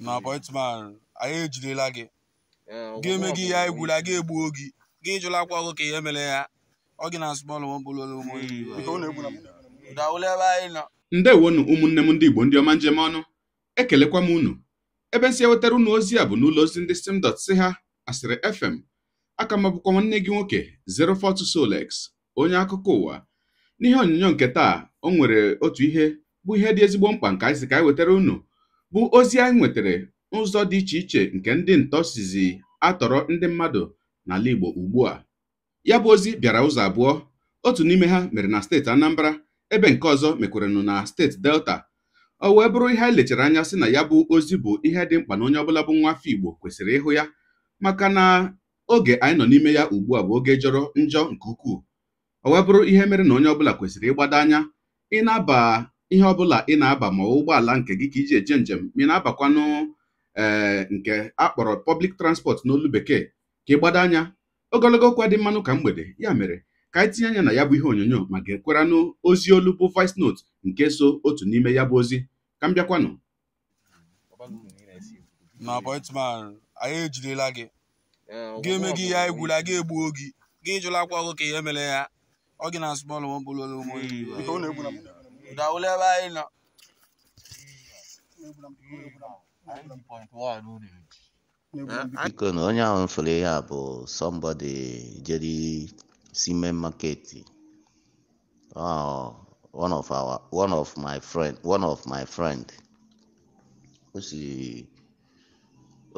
na apọịntman anyị ejidela gị ga-eme gị ya egwula gị egbuo gị gị jụlakwa ọgụ ka ihe mere ya ọ gị na smọlụ nwabololo ebe anyị nọ ndewonu ụmụnne m ndị Igbo ndị ọma njem ọnụ ekelekwa m unu ebe nsị ewetara unu ozi a bụ n'ụlọ ozi ndị sim dọt si ha Asịrị FM aka m nwanne gị nwoke 042 Solex onye akụkọ ụwa n'ihe onyonyo nke taa o nwere otu ihe bụ ihe dị ezigbo mkpa nke anyị si ka anyị wetara unu bụ ozi anyị nwetara n'ụzọ dị iche iche nke ndị ntọ sizi atọrọ ndị mmadụ n'ala Igbo ugbu a ya bụ ozi bịara ụzọ abụọ otu n'ime ha mere na steeti Anambra ebe nke ọzọ mekwaranụ na steeti Delta o wee bụrụ ihe anyị lechara anya sị na ya bụ ozi bụ ihe dị mkpa na onye ọbụla bụ nwa afọ Igbo kwesịrị ịhụ ya maka na oge anyị nọ n'ime ya ugbu a bụ oge jọrọ njọ nke ukwuu o wee bụrụ ihe mere na onye ọbụla kwesịrị ịgbado anya ị na-aba ihe ọbụla ị na-aba ma ụgbọala nke gị ka iji eje njem ma ị na-abakwanụ ee eh, nke akpọrọ pọblik transport n'olu bekee ka ị gbado anya ogologo okwu dị mmanụ ka mgbede ya mere ka anyị tinye anya na ya bụ ihe onyonyo ma ga-ekweranụ ozi olu bụ voice note nke so otu n'ime ya bụ ozi ka m bịakwanụ anyị gị eh, gị eme gị ya egwula gị egbuo gị gị ka ihe mere ya ọ gị na ụmụ Daule bai na. Biko na onye ahụ mfere ya bụ somebody jere sime market one of our one of my friend one of my friend o si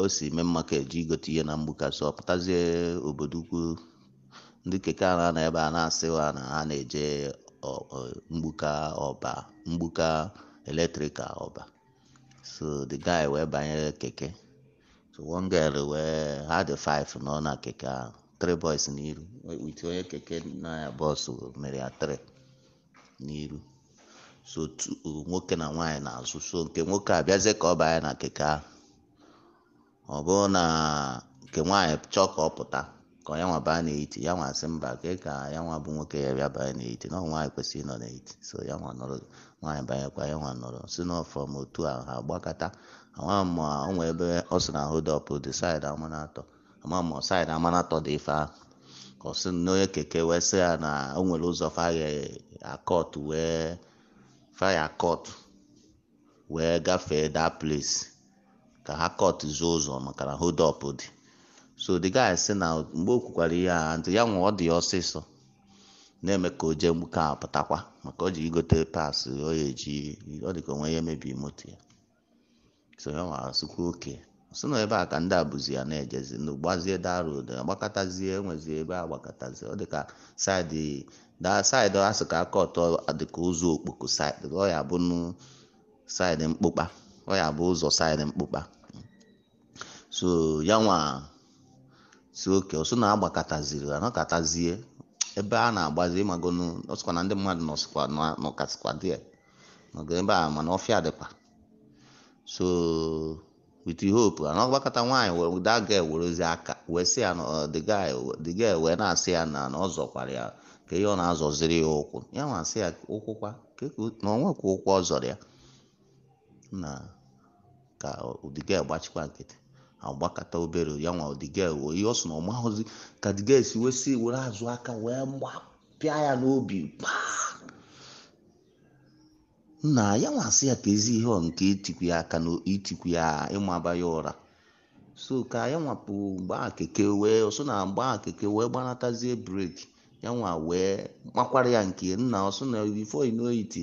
o si mee market ji igote ihe na mgbukasị ọ pụtazie obodo ukwu ndị keke a na-anọ ebe a na-asịwa na ha na-eje mgbuka ọba mgbuka eletrika ọba so the guy wee banyere keke so one girl wee ha dị five nọ na keke ahụ three boys n'iru wit onye keke na ya bọs mere ya three n'iru so nwoke na nwanyị na-azụ so nke nwoke a bịazie ka ọ banye na keke ahụ ọ bụrụ na nke nwanyị chọọ ka ọ pụta ka ya nwa baa na-eti ya nwa asị mba ka ka ya nwa bụ nwoke ya bịa banye na-eti na nwaanyị kwesịrị ịnọ na so ya nwa nọrọ nwaanyị banyekwa ya nwa nọrọ si n'ọfọm otu ahụ ha gbakọta ama ma o nwee ebe ọ sị na ahụ dọpụ dị saịdị amanatọ ama ma saịdị amanatọ dị ife ahụ ka ọ sị na onye keke wee sị ya na o nwere ụzọ faya akọt wee faya akọt wee gafee daa place ka ha kọt zuo ụzọ maka na hold up dị so the guy sị na mgbe o kwukwara ihe a ntị ya nwa ọ dị ọsịsọ na-eme ka o jee gbuka pụtakwa maka o ji igote pas ọ ya eji ọ dị ka onwe ya emebi moto ya so ya nwa sịkwa oke sị na ebe a ka ndị a abụzi ya na-ejezi na n'ugbazie darod agbakọtazie enwezie ebe a gbakọtazie ọ dịka ka saịdị daa saịdị asị ka aka ọtọ dịka ụzọ okpoko saịdị ọ ya bụ saịdị mkpụkpa ọ ya bụ ụzọ saịdị mkpụkpa so ya nwa si oke ọsọ na-agbakọtaziri anọkọtazie ebe a na-agbazi ịmagonu ọsịkwa na ndị mmadụ nọsịkwa nọkasịkwa dị nọgo ebe a mana ọfịa dịkwa so with hope anọgbakọta nwaanyị were that girl werezi aka wee sị ya uh, the guy the girl wee na-asị ya na na ọ zọkwara ya ka ihe ọ na-azọziri ya ụkwụ ya nwa asị ya ụkwụkwa e na onwekwa ụkwụ ọ zọrọ ya na ka ụdịga uh, gbachikwa nkịtị agbakọta obere ya nwa odigel wee ihe ọ sọ na ọ mahụzi ka digel si wee si were azụ aka wee gbapịa ya n'obi paa na ya nwa sị ya ka ezi ihe ọ nke itikwu ya aka na itikwu ya ịmaba ya ụra so ka ya nwapụ gbaa keke wee ọsọ na gbaa keke wee gbanatazie breki ya nwa wee gbakwara ya nke nna ọsọ na bifo inoiti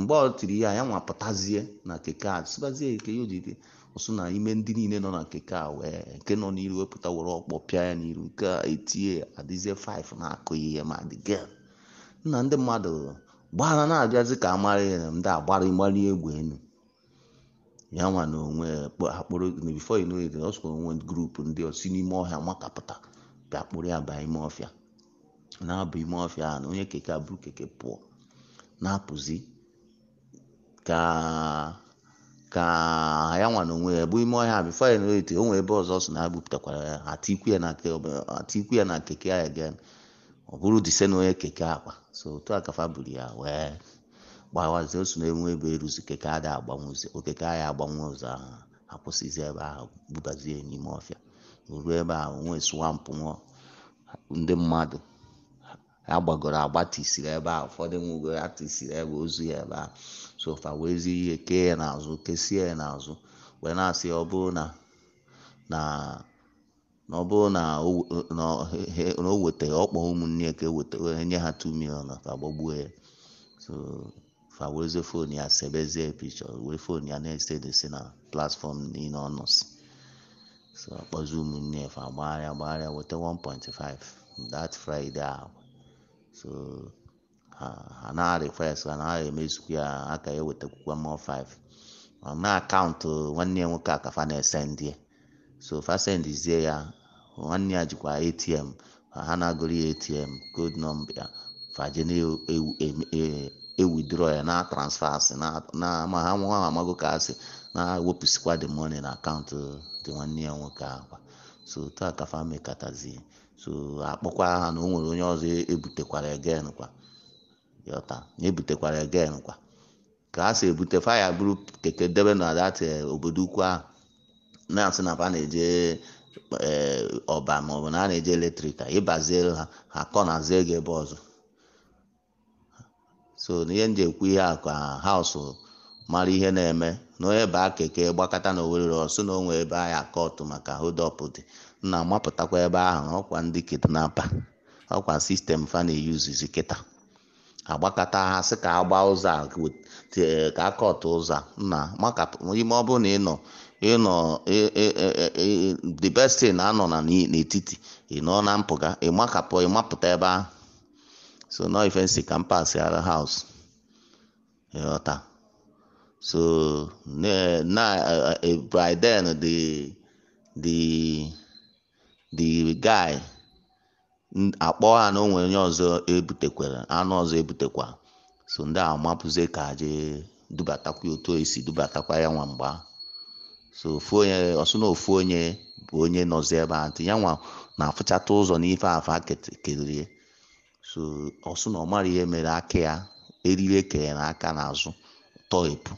mgbe ọ tiri ya ya nwa pụtazie na keke a sịbazie keke ya ojide ọsụ na ime ndị niile nọ na keke a wee nke nọ n'iru wepụta were ọkpọ pịa ya n'iru nke a etie adịzie 5 na-akụ ihe ma dị gel nna ndị mmadụ gbara na-abịazi ka amara ya ndị agbara ịgbali egwu enu ya nwa na onwe akpụrụ bifo ino ede ọ onwe grupu ndị osi n'ime ọhịa makapụta bịa kpụrụ ya baa ime ọfịa na-abụ ime ọfịa na onye keke buru keke pụọ na-apụzi ka ka ya nwa na onwe ya bụ ime ọhịa bifo ya na-erite o nwere ebe ọzọ si na ha gbupụtakwara ya atikwu ya na keke ya ga ọ bụrụ dise na onye keke akpa so otu kafa buru ya wee gbawazie osu na enwe ebe eruzi keke ada agbanwụzi okeke ahịa agbanwe ụzọ ahụ akwụsịzi ebe ahụ bubazie n'ime ọfịa ruo ebe ahụ nwee swampụ nwụọ ndị mmadụ agbagoro agbatisiri ebe ahụ ụfọdụ nwụgoro atisiri ebe ozu ya ebe ahụ sofa wee zi ihe kee ya n'azụ kesie ya n'azụ wee na-asị ọ bụrụ na na na ọ bụrụ na o e weta ọkpọ ụmụnne ka eweta nye ha 2 million ka gbagbuo ya so fa wezie fon ya sebezie pichọ wee fon ya na-ese desi na platfọm niile ọ so akpọzi ụmụnne ya fa gbagharịa gbagharịa weta 1.5 that friday ahụ so anaghị request a naghị emezukwu ya aka ewetakwukwa mmụọ 5 na akaụntụ nwanne ya nwoke akafa na-ese so fasendizie ya nwanne ya jikwa atm ha na-agụrụ ya atm Gold nọmba fajena ewidro ya na na ma ha nwa amago ka asị na ewepụsikwa the money na akaụntụ dị nwanne ya nwoke akwa so taa ka fa so akpọkwa ha na o nwere onye ọzọ ebutekwara egen kwa yọta ebutekwara egen kwa ka ha si ebute faya bụrụ keke debe na dati eh, obodo ukwu ahụ na-asị na fa na-eje eh, ọba maọbụ na a na-eje eletrik ịbazie ha ha kọnazie gị ebe ọzọ so n'ihe nje ekwu ihe a ka haụsụ mara ihe na-eme na onye baa keke gbakọta na owerere ọsụ na onwe ebe ahụ akọtụ maka hodop dị na amapụtakwa ebe ahụ ọkwa ndị kidnapa ọkwa sistem fa na-eyuzizi kịta agbakọta ha sị ka agba ụzọ a ka akọtụ ụzọ na maka ime ọ bụrụ na ịnọ ịnọ the best thing na-anọ na n'etiti ịnọ na mpụga ịmakapụ ịmapụta ebe ahụ so nọ ife nsi ka mpasị ara haus ịghọta so na eh, eh, by then the the the guy akpọ ha na o onye ọzọ ebutekwara anụ ọzọ ebutekwa so ndị a mapụzie ka je dubatakwa otu esi dubatakwa ya nwa mgba so ofu onye ọsụ na ofu onye bụ onye nọzi ebe a ntị ya nwa na-afụchata ụzọ n'ife afa kelee so ọsụ na ọmara ihe mere aka ya eriri ekere na aka n'azụ tọhepụ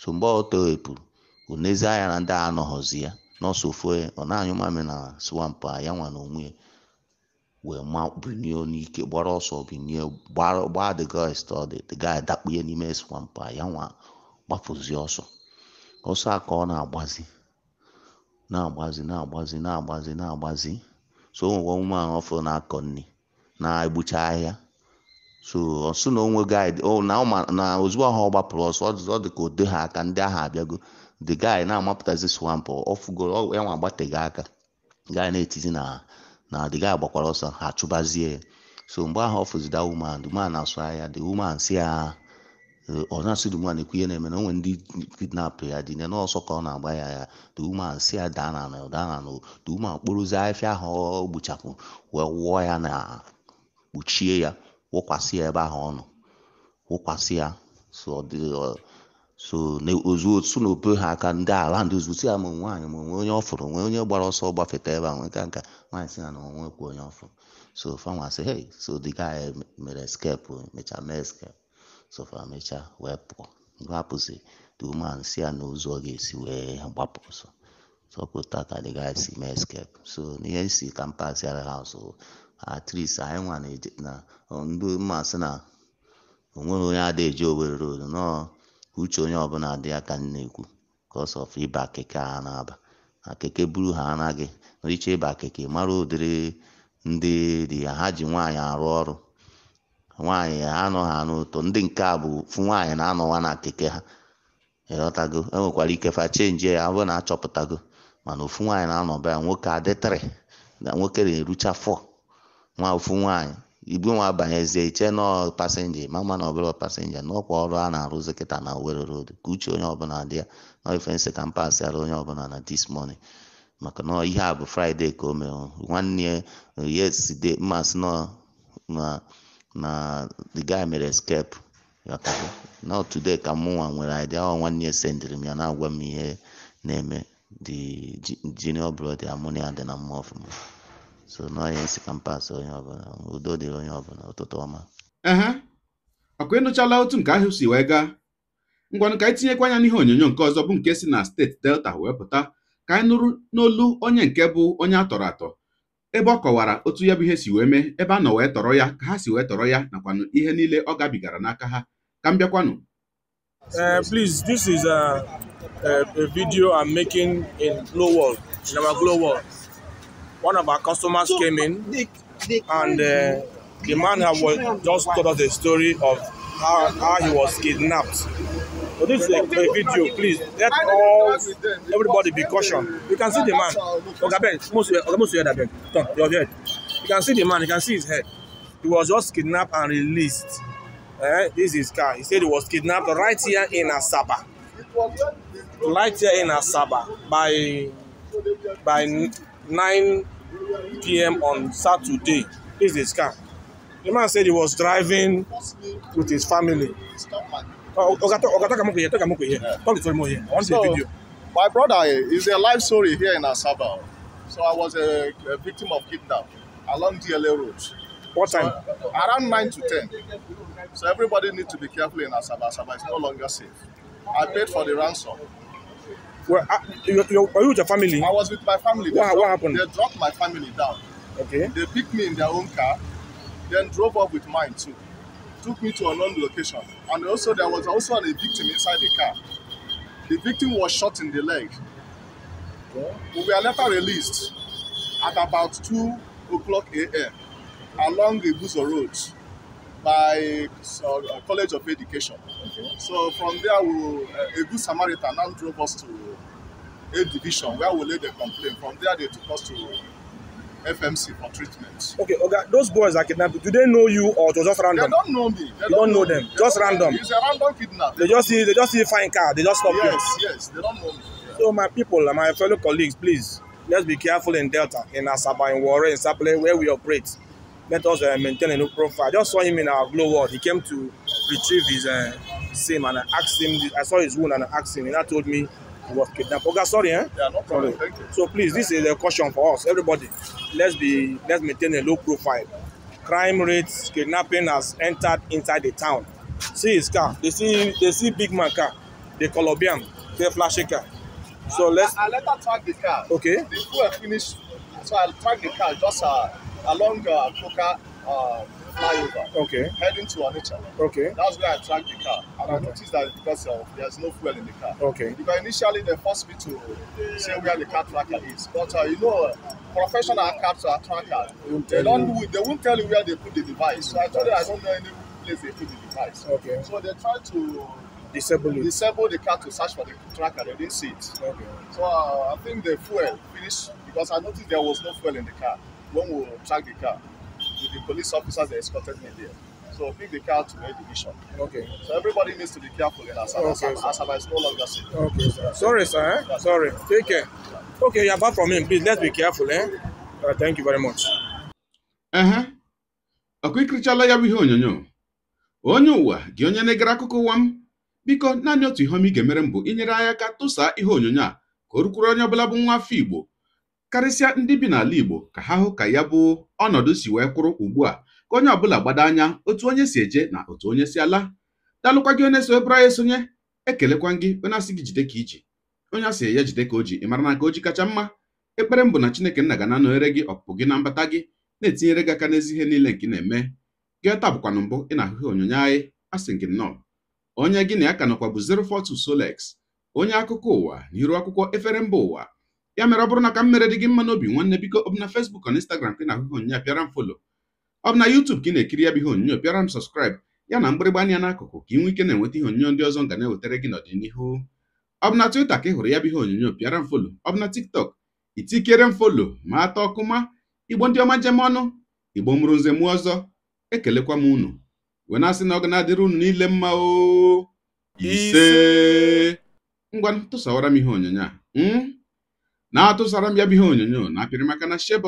so mgbe ọ tọhepụrụ o anya na ndị a anọghọzi ya n'ọsọ ofu onye ọ na-anyụ mamị na swampụ a ya nwa na onwe ya wee makpunie n'ike gbara ọsọ binie gbaa the guy study the guy dakpunye n'ime swamp ya nwa gbapụzi ọsọ ọsọ a ka ọ na-agbazi na-agbazi na-agbazi na-agbazi na-agbazi so onwe nwa ahụ ọfụrụ na-akọ nri na-egbucha ahịa so ọsọ na onwe guide na ozugbo ahụ ọ gbapụrụ ọsọ ọ dị ka o ha aka ndị ahụ abịago the guy na-amapụtazi swamp ọ ya nwa agbateghị aka guy na-etizi na na adịghị agbakwara ọsọ ha chụbazie so mgbe ahụ ọ fụzida woman the man asụ ahịa the woman si ya eh, ọ na-asụ the woman ekwu ihe na-eme na nwere ndị kidnap ya dị na ọsọ ka ọ na-agba ya ya the woman si ya daa na anọ daa na anọ the woman kporozie afịa ahụ ọ gbuchapụ wee wụọ ya na kpuchie ya wụkwasị ya ebe ahụ ọ nọ wụkwasị ya so ọ dị so ozu otu na obe ha aka ndị ala ndị ozu si ya ma nwaanyị ma onwe onye ọ fụrụ onwe onye gbara ọsọ gbafeta ebe a nwee ka nka nwaanyị si ya na onwe kwuo onye ọfụrụ so fama sị hey so the guy mere escape mechaa mee escape so fa mechaa wee pụọ mgbe ha pụzi the woman si ya na ozu ọ ga-esi wee gbapụ ọsọ sọpụta ka dị gaa si mee escape so n'ihe si ka mpaghara ha so at least anyị nwa na ndị mmasị na onwere onye adịghị eji owere road nọọ uche onye ọbụla dị ya ka m na-ekwu cos of ịba keke a na-aba akeke keke buru ha anaghị naiche ịba akeke mara ụdịrị ndị dị ya ha ji nwaanyị arụ ọrụ nwaanyị anọ ha n'ụtọ ndị nke a bụ fụ nwaanyị na-anọwa na keke ha ịghọtago enwekwara ike fa chenji ya abụrụ na achọpụtago mana ofu nwaanyị na-anọba ya nwoke adịtịrị na nwoke na-erucha fọ nwa ofu nwaanyị ibu nwa banyezie iche nọ pasenja ma ma na ọbụla pasenja n'ọkwa ọrụ a na-arụzi kịta na Owerri road ka uche onye ọbụla dị ya nọ ifensi ka onye ọbụla na this morning maka na ihe a bụ fraịde ka o mere nwanne yeside mmasị nọ na the guy mere escape na today ka mụnwa nwere idea ọ nwanne ya m ya na-agwa m ihe na-eme the junior brother amụnia dị na mma ọfụma so n'ọhịa isi ka mpaghara onye ọbụla udo dịrị onye ọbụla ụtụtụ ọma ehe ọkụ ịnụchala otu nke ahụ si wee gaa ngwanụ ka anyị tinyekwa anya n'ihe onyonyo nke ọzọ bụ nke si na steeti delta wee pụta ka anyị nụrụ n'olu onye nke bụ onye a tọrọ atọ ebe ọ kọwara otu ya bụ ihe si wee mee ebe a nọ wee tọrọ ya ka ha si wee tọrọ ya nakwanụ ihe niile ọ gabigara n'aka ha ka m bịakwanụ eh, please this is a, a, a video I'm making in Glow World. one of our customers so, came in they, they and uh, the man was, just told us a story of how, how he was kidnapped. So this is a, a video, please. Let all everybody be cautioned. You can see the man. almost, most most your head, turn your head. You can see the man. You can see his head. He was just kidnapped and released. Eh? This is his car. He said he was kidnapped right here in Asaba. Right here in Asaba by by 9 p.m. on Saturday. This is a scam. The man said he was driving with his family. Oh, okay, okay, talk here. Talk here. Talk to him here. I want the video. My brother eh, is a life story here in Asaba. So I was a, a victim of kidnapping along DLA Road. What time? So, uh, around 9 to 10. So everybody needs to be careful in Asaba. Asaba is no longer safe. I paid for the ransom. Well, uh, you, you, were you with your family? I was with my family. what, dropped, what happened? They dropped my family down. Okay. They picked me in their own car, then drove up with mine too. Took me to a another location. And also, there was also a victim inside the car. The victim was shot in the leg. Okay. We were later released at about 2 o'clock a.m. along the Buzo Road by uh, College of Education. Okay. So from there, we, uh, a good Samaritan now drove us to A division where we lay the complaint. From there, they took us to FMC for treatment. Okay, okay. Those boys are kidnapped you, do they know you or it was just random? They don't know me. They don't, don't know, them. They just random. It's a random kidnap. They just see they just see a fine car. They just stop yes, you. Yes, yes. They don't know me. So my people and uh, my fellow colleagues, please let's be careful in Delta, in Asaba, in Warren, in Sapele, where we operate. Let us uh, maintain a new profile. I just saw him in our glow world. He came to retrieve his uh, SIM and I asked him. I saw his wound and I asked him, and I told me was kidnapped. okay, sorry, eh? Yeah, no problem. Sorry. Thank you. So please, this is a caution for us, everybody. Let's be let's maintain a low profile. Crime rates, kidnapping has entered inside the town. See his car. They see they see big man car, the Colombian, the flashy car. So I, let's. I, I let her track the car. Okay. Before I finish, so I'll track the car just uh, along uh, Coca. Uh, flyover. Okay. Heading to Onitsha. Okay. That's where I tracked the car. And okay. I noticed that because uh, there's no fuel in the car. Okay. Because initially they forced me to say where the car tracker is. But uh, you know, professional car tracker, they don't you. they won't tell you where they put the device. So I told them I don't know any place they put the device. Okay. So they tried to disable it. Disable the car to search for the tracker. They didn't see it. Okay. So uh, I think the fuel finished because I noticed there was no fuel in the car when we tracked the car. with the police officers that escorted me there. So pick the car to a division. Okay. So everybody needs to be careful in Asaba. Okay, Asaba is no longer safe. Okay, sir. Sorry, sir. Eh? Sorry. Take care. Okay, you're back from him. Please, let's be careful. Eh? Uh, thank you very much. Ehe. Ọkụ ikirichala ya bụ ihe onyonyo. Onye ụwa gị onye na-egere akụkọ ụwa m biko naanị otu ihe ọma ị ga-emere m bụ inyere anyị aka tụsaa ihe onyonyo a ka o rukwuru onye ọbụla bụ nwa afọ Igbo karịsịa ndị bi n'ala Igbo ka ha hụ ka ya bụ ọnọdụ si wee kwụrụ ugbu a ka onye ọbụla gbado anya otu onye si eje na otu onye si ala dalụkwa gị onye so ebụrụ anyị esonye ekelekwa gị onye asị gị jide ka iji onye asị ya jide ka o ji ị mara na aka o ji kacha mma ekpere mbụ na Chineke nna ga na-anọnyere gị ọpụpụ gị na mbata gị na-etinyere gị aka n'ezi ihe niile nke ị na-eme gị taa bụkwanụ mbụ ị na-ahụhụ onyonyo anyị asị gị nnọọ onye gị na ya ka nọkwa bụ 042 Solex onye akụkọ ụwa na iru akwụkwọ efere mba ụwa ya mere ọ bụrụ na ka m mere dị gị mma n'obi nwanne biko ọ bụ na Facebook na Instagram ka ị na-ahụ ihe onyinye pịara m folo ọ bụ na YouTube ka ị na-ekiri ya bụ ihe onyinyo pịara m sọskraịbụ ya na mgbịrịgba anya n'akụkụ ka ị nwee ike na-enweta ihe onyinyo ndị ọzọ nga na-ewetara gị n'ọdịnihu ọ bụ na ka ị hụrụ ya bụ ihe onyonyo pịara m folo ọ bụ na TikTok itikere m folo ma atọ ma igbo ndị ọma jem ọnụ igbo mụrụ nze mụọ ọzọ ekelekwa m unu wee na-asị ọ ga na-adịrị unu niile mma ngwa tụsawara m ihe onyonyo a hmm? na-atụsara m ya bụ ihe onyonyo na apịrị maka na share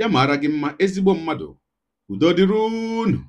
ya mara gị mma ezigbo mmadụ udo dịrị unu